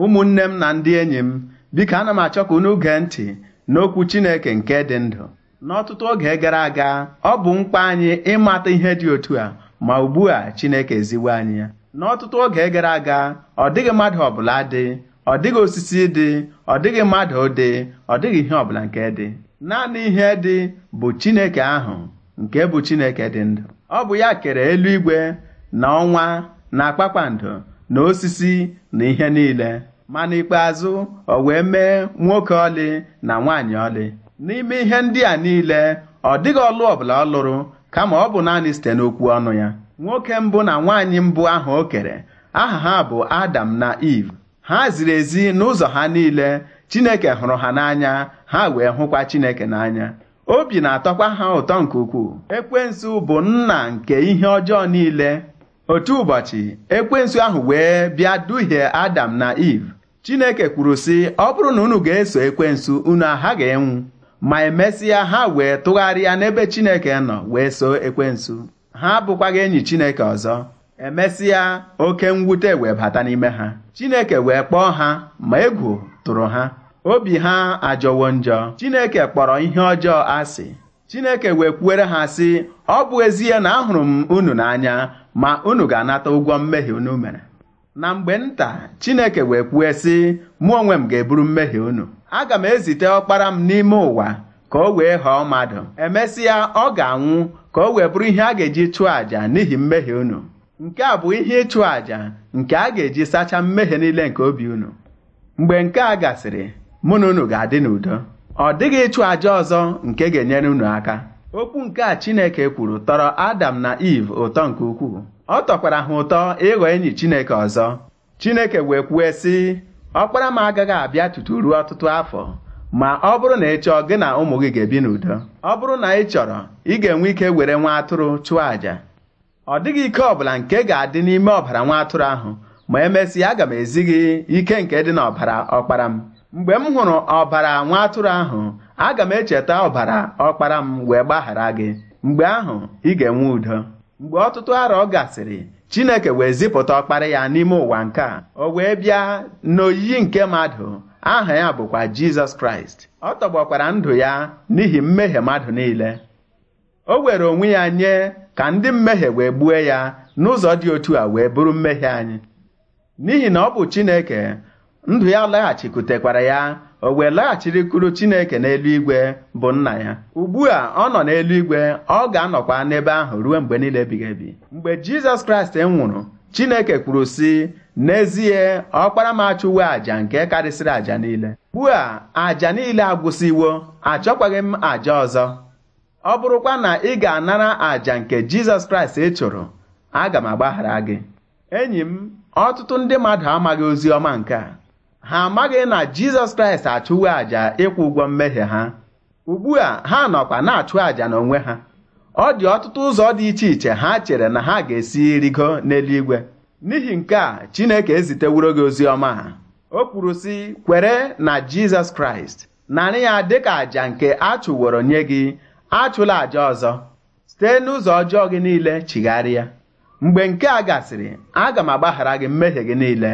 ụmụnne m na ndị enyi m biko ana m achọ ka unu gee ntị n'okwu Chineke nke dị ndụ n'ọtụtụ oge gara aga ọ bụ mkpa anyị ịmata ihe dị otu a ma ugbu a Chineke eziwo anyị ya n'ọtụtụ oge gara aga ọ dịghị mmadụ ọbụla dị ọ dịghị osisi dị ọ dịghị mmadụ dị ọ dịghị ihe ọbụla nke dị naanị ihe dị bụ Chineke ahụ nke bụ Chineke dị ndụ ọ bụ ya kere eluigwe na ọnwa na kpakpando na osisi na ihe niile mana ikpeazụ ọ wee mee nwoke ọlị na nwaanyị ọlị n'ime ihe ndị a niile ọ dịghị ọlụ ọbụla ọ lụrụ kama ọ bụ naanị site n'okwu ọnụ ya nwoke mbụ na nwaanyị mbụ ahụ o kere aha ha bụ Adam na Eve ha ziri ezi n'ụzọ ha niile Chineke hụrụ ha n'anya ha wee hụkwa Chineke n'anya obi na-atọkwa ha ụtọ nke ukwuu ekwensu bụ nna nke ihe ọjọọ niile otu ụbọchị ekwensu ahụ wee bịa duhie adam na iv chineke kwuru sị ọ bụrụ na unu ga-eso ekwensu unu ga enwu ma emesịa ha wee tụgharịa n'ebe chineke nọ wee so ekwensu ha gị enyi chineke ọzọ emesịa oke mwute wee bata n'ime ha chineke wee kpọọ ha ma egwu tụrụ ha obi ha ajọwo njọ chineke kpọrọ ihe ọjọọ asị chineke wee kwuere ha sị ọ bụ ezie na ahụrụ m unu n'anya ma unu ga-anata ụgwọ mmehie unu mere na mgbe nta Chineke wee kwue sị mụ onwe m ga-eburu mmehie unu aga m ezite ọkpara m n'ime ụwa ka o wee ghọọ mmadụ emesịa ọ ga-anwụ ka o wee bụrụ ihe a ga-eji chụọ àjà n'ihi mmehie unu nke a bụ ihe ịchụ àjà nke a ga-eji sachaa mmehie niile nke obi unu mgbe nke a gasịrị mụ na unu ga-adị n'udo ọ dịghị ịchụ àjà ọzọ nke ga-enyere unu aka okwu nke a Chineke kwuru tọrọ Adam na Iv ụtọ nke ukwuu ọ tọkwara ha ụtọ ịghọ enyi Chineke ọzọ Chineke wee kwue sị ọkpara m agaghị abịa tutu ruo ọtụtụ afọ ma ọ bụrụ na ị chọọ gị na ụmụ gị ga-ebi n'udo ọ bụrụ na ị chọrọ ị ga-enwe ike were nwa atụrụ chụọ àjà ọ dịghị ike ọbụla nke ga-adị n'ime ọbara nwa atụrụ ahụ ma emesịa aga m ezi gị ike nke dị n'ọbara ọkpara m mgbe m hụrụ ọbara nwa atụrụ ahụ aga m echeta ọbara ọkpara m wee gbaghara gị mgbe ahụ ị ga-enwe udo mgbe ọtụtụ arọ gasịrị Chineke wee zipụta ọkpara ya n'ime ụwa nke a o wee bịa n'oyiyi nke mmadụ aha ya bụkwa Jizọs Kraịst ọ tọgbọkwara ndụ ya n'ihi mmehie mmadụ niile o were onwe ya nye ka ndị mmehie wee gbuo ya n'ụzọ dị otu a wee bụrụ mmehie anyị n'ihi na ọ bụ Chineke ndụ ya laghachikwutekwara ya o wee laghachirikwuru chineke n'eluigwe bụ nna ya ugbu a ọ nọ n'eluigwe ọ ga-anọkwa n'ebe ahụ ruo mgbe niile ebighị ebi mgbe jizọs kraịst nwụrụ chineke kwuru sị n'ezie ọkpara m achụwo àjà nke karịsịrị àjà niile ugbu a àjà niile agwụsịwo achọkwaghị m àjà ọzọ ọ bụrụkwa na ị ga-anara àjà nke jizọs kraịst ị chụrụ aga m agbaghara gị enyi m ọtụtụ ndị mmadụ amaghị ozi ọma nke a ha amaghị na Jizọs Kraịst achụwo àjà ịkwụ ụgwọ mmehie ha ugbu a ha nọkwa na-achụ àjà n'onwe ha ọ dị ọtụtụ ụzọ dị iche iche ha chere na ha ga-esi rigo n'eluigwe n'ihi nke a Chineke eziteworo gị ozi ọma ha o kwuru sị kwere na Jizọs Kraịst narị ya dịka àjà nke a chụworo nye gị achụla àjà ọzọ site n'ụzọ ọjọọ gị niile chigharịa mgbe nke a gasịrị aga m agbaghara gị mmehie gị niile